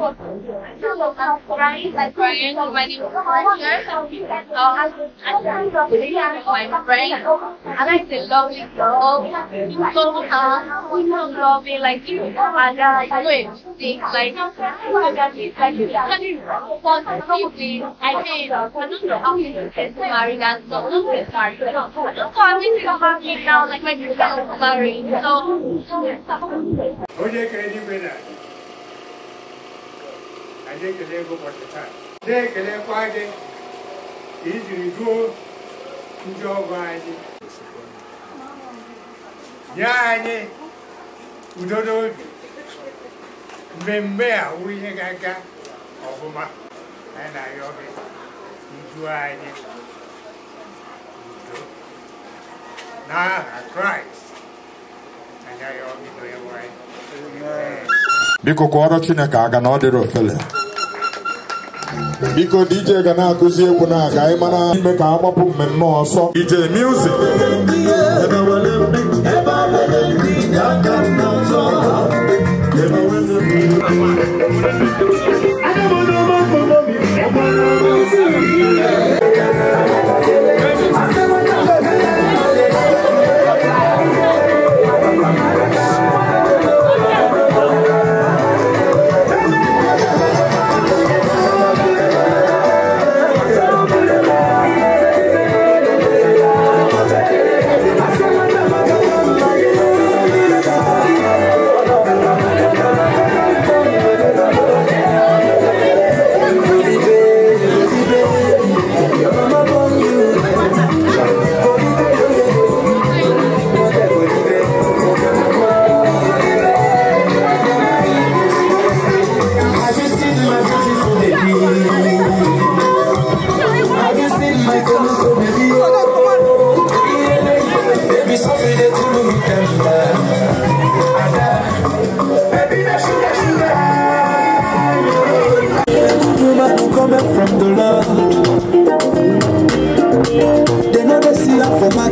my brain, my depression. Oh, I really my brain. I like to go with flow. So, uh, we like you. And, uh, wait, it's like, it's for something, I mean, I don't know how you I'm just talking Oye, que ni pena. I take a Lego at the time. Take a Lego idea. Easily go to job idea. Ya idea. Udodo. Mmemme a wunye gaga ọfụma na ya ọhị nju anyị udo n'aha Kraịst na ya ọhị na ya nwanyị. biko kọọrọ chineke aga na ọ dịrị ofele biko dj ga na-akụzi egwu na aga anyị mara ime ka agbapụ mmemme ọsọ ije music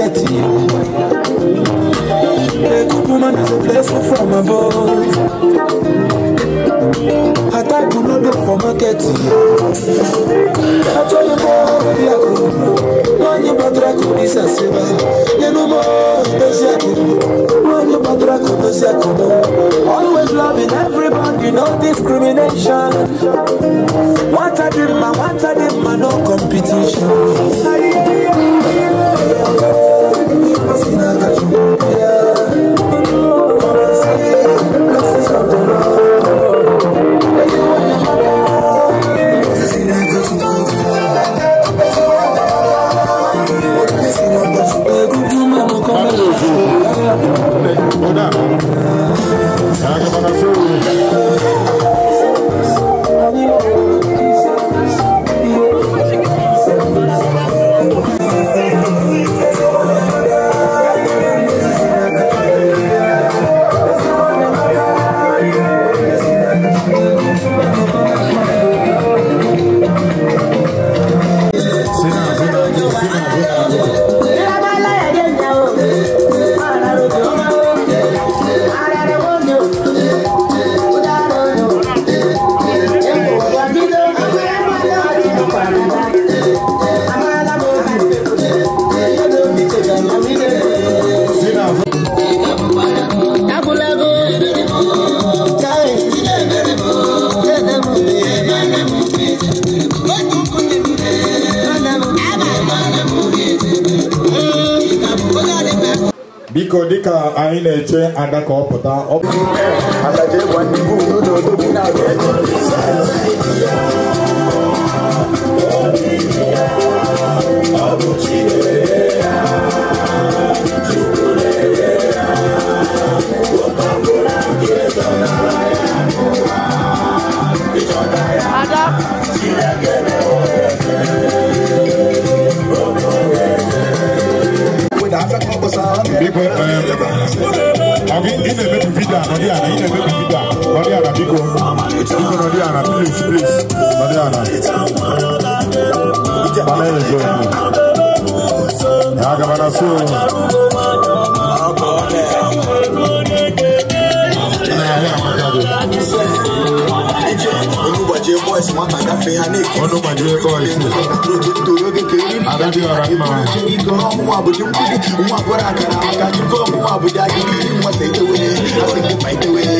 get you. A good woman is a blessing from above. I thought you know for market. I told you more, a good. One you batra could be sensible. You know more, there's a good. One you batra could be sensible. Always loving everybody, no discrimination. What I did, my what I did, my no competition. 지나가 ada ka ọ pụta ọ Biko, Biko Nadiana, please, please. Nadiana. Bana is going to. Agabana so. Onubaje boys. my ọ̀rọ̀ ìmọ̀ rẹ̀. Ọmọ àbójú kúrò, ọmọ àgbọ̀rọ̀ àkàrà, àkàjú kọ́ ọmọ àbójú ayé, ìmọ̀ tẹ̀lé wẹ̀, àti ìgbìmọ̀ ìtẹ̀wẹ̀.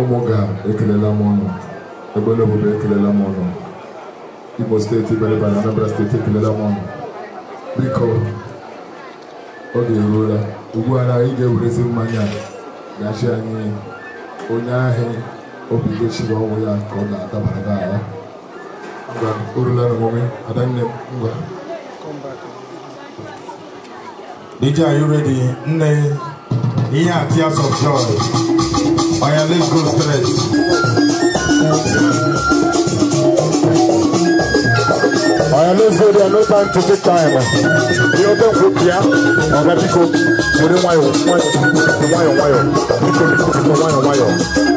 ụmụ ga ekelela m ọnụ egbele obodo ekelela m ọnụ Igbo steeti belebana Anambra steeti ekelela m ọnụ biko oge eruola ugbu a anyị ga-ewerezi mmanya gachi anyị onye ahịa obi gochiri ọnwụ ya ka ọ ga-adabara n'ala ngwa orula n'omume adanne ngwa DJ, are you ready? Nne, he had tears of Oya, let's go straight. Oya, let's go there. No time to take time. The open group here. Oga Biko. Wọ́n ní wáyọ̀ wáyọ̀ wáyọ̀ wáyọ̀. Biko Biko Biko wáyọ̀ wáyọ̀.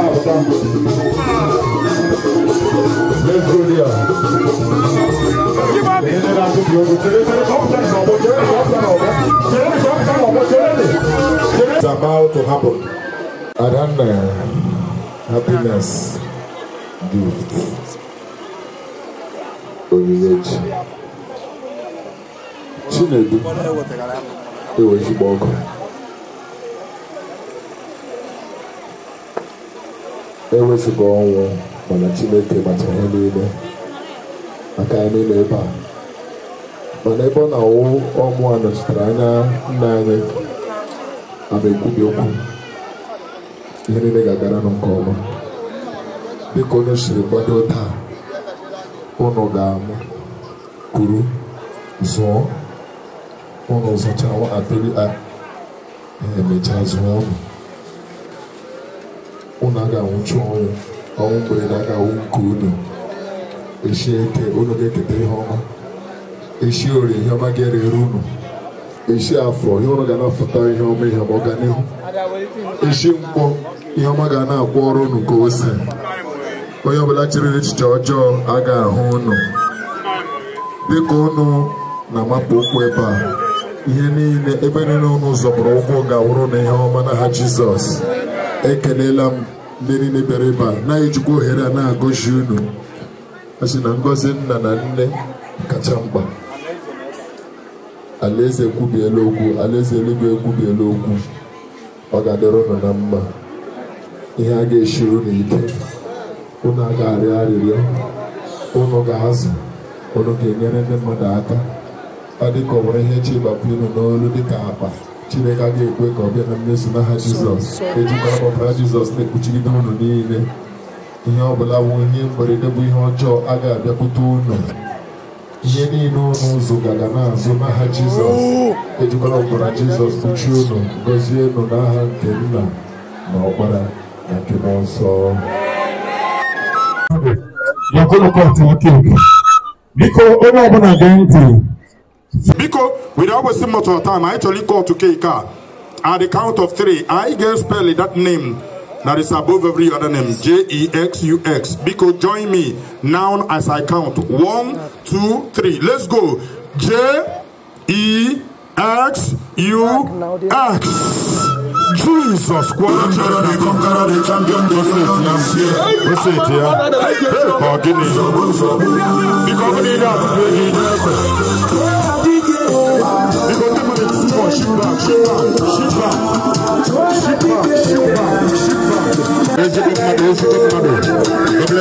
It's about to happen. Adan uh, happiness gift. Oyinyechi. Chinedu. Ewe Jiboko. ewezụga ọnwụ mana Chineke gbachara ihe niile maka ya niile ebe a mana ebe ọ na ọwụ ọmụ a nọchitere anya nna anyị ama ekwubi okwu ihe niile ga-agara nụ nke ọma dịka onye siri gbado taa ụnụ ga-amụ kuru zụọ ụnụ zụchara nwatakịrị a emechaa zụọ ụnụ unu aga anwụchu ọnwụ ọnwụ mberede aga awụ nke unu echi eke unu ga-eketa ihe ọma echi ori ihe ọma ga-ere eru unu echi afọ ihe ọma ga na-afụta ihe ọma ihe ọma ọganihu echi mkpọ ihe ọma ga na-agwọ ọrụ unu ka ose onye ọbụla chịrị echiche ọjọọ a ga-ahụ unu dịka unu na-amapụ ụkwụ ebe a ihe niile ebe niile unu zọpụrụ ụkwụ ga-awụrụ na ihe ọma n'aha Jizọs ekelela m ndị niile bịara ebe a na-ejikwa ohere a na-agọzi unu asị na ngozi nna na nne kacha mkpa alaeze ekwubiela okwu alaeze eluigwe ekwubiela okwu ọ ga-adịrị nọ na mma ihe a ga-esiri unu ike unu a ga-arịọ arịrịọ ga-azụ ụnụ ga-enyere ndị mmadụ aka ọ dịka ọ nwere ihe chi gbapụ ịnụ n'olu ka akpa chineke aga ekwe ka ọ bịa na mmeso n'aha jizọs ejikwa ọbara jizọs na-ekpuchigide ụnụ niile ihe ọbụla bụ ihe mberede bụ ihe ọjọọ a ga-abịakwute ụnụ. ihe niile ụzọ ụzụ na-azụ n'aha jizọs ejikwara ọbara jizọs kpuchie ụnụ gọzie nụ n'aha nke nna na ọkpara na nke mmụọ nsọ biko onye ọbụla gee ntị biko without wasting much of time i actually call to kk at the count of three i can spell that name that is above every other name j-e-x-u-x biko join me now as i count one two three let's go j-e-x-u-x Jesus Christ. Because we need that.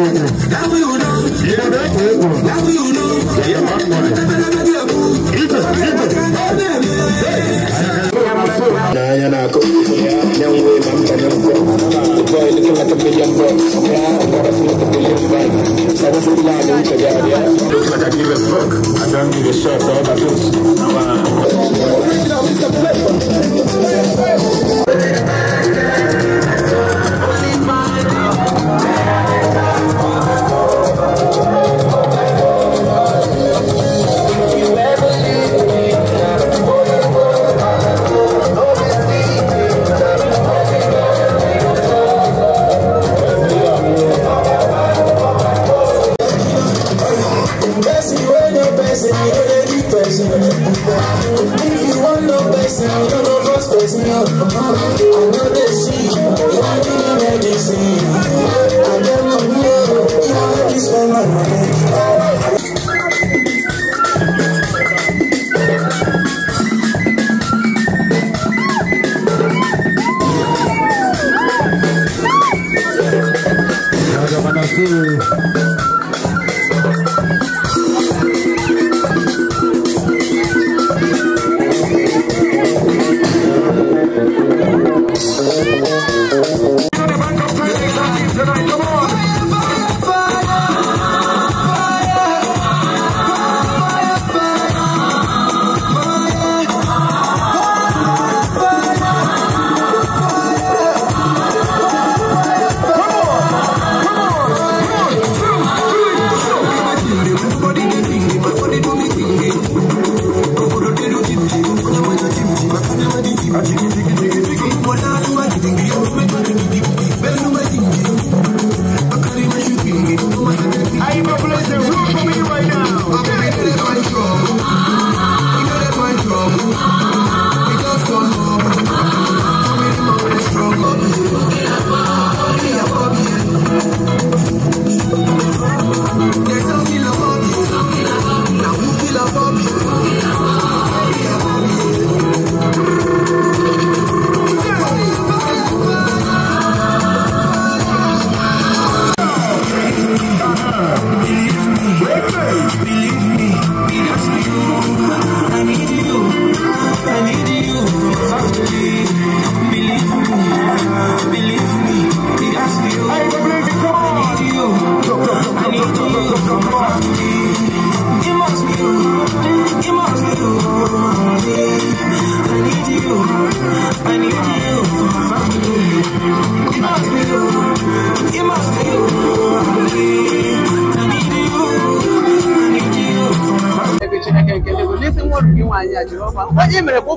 Now you know. Yeah, that's it. Now know. Yeah, my money. Keep it, keep it. Nah, you're yeah, good. Yeah, young way, man, can you go? Boy, looking like a million bucks. Yeah, I got a feel like a million bucks. So what's the line? Looks like I give a fuck. I don't give a shit about this. person If you want Thank you.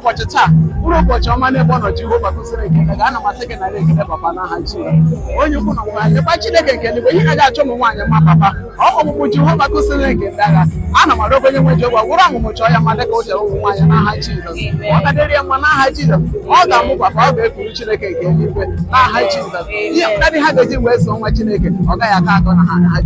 much attack bụrụ ụbọchị ọma n'ebe ọ nọ Jehova gosiri nke na ga-ana masị gị nara ekele papa n'aha Jizọs onye ukwu na nwaanyị kwa Chineke nke eluigwe ihe na achọ m nwaanyị mma papa ọ ọmụmụ Jehova gosiri gị ndị agha ana m onye nwe Jehova wụrụ ọmụmụ chọọ ya ma dị ka ụjọ ụmụ nwaanyị n'aha Jizọs ọ ga ya mma n'aha Jizọs ọ ga-amụ papa ọ ga-ekuru Chineke nke eluigwe n'aha Jizọs ihe ha ga nwa Chineke ọ mma ọ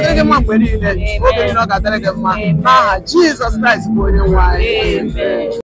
gị mgbe niile oge ọ Jesus Christ, for your wife. Amen.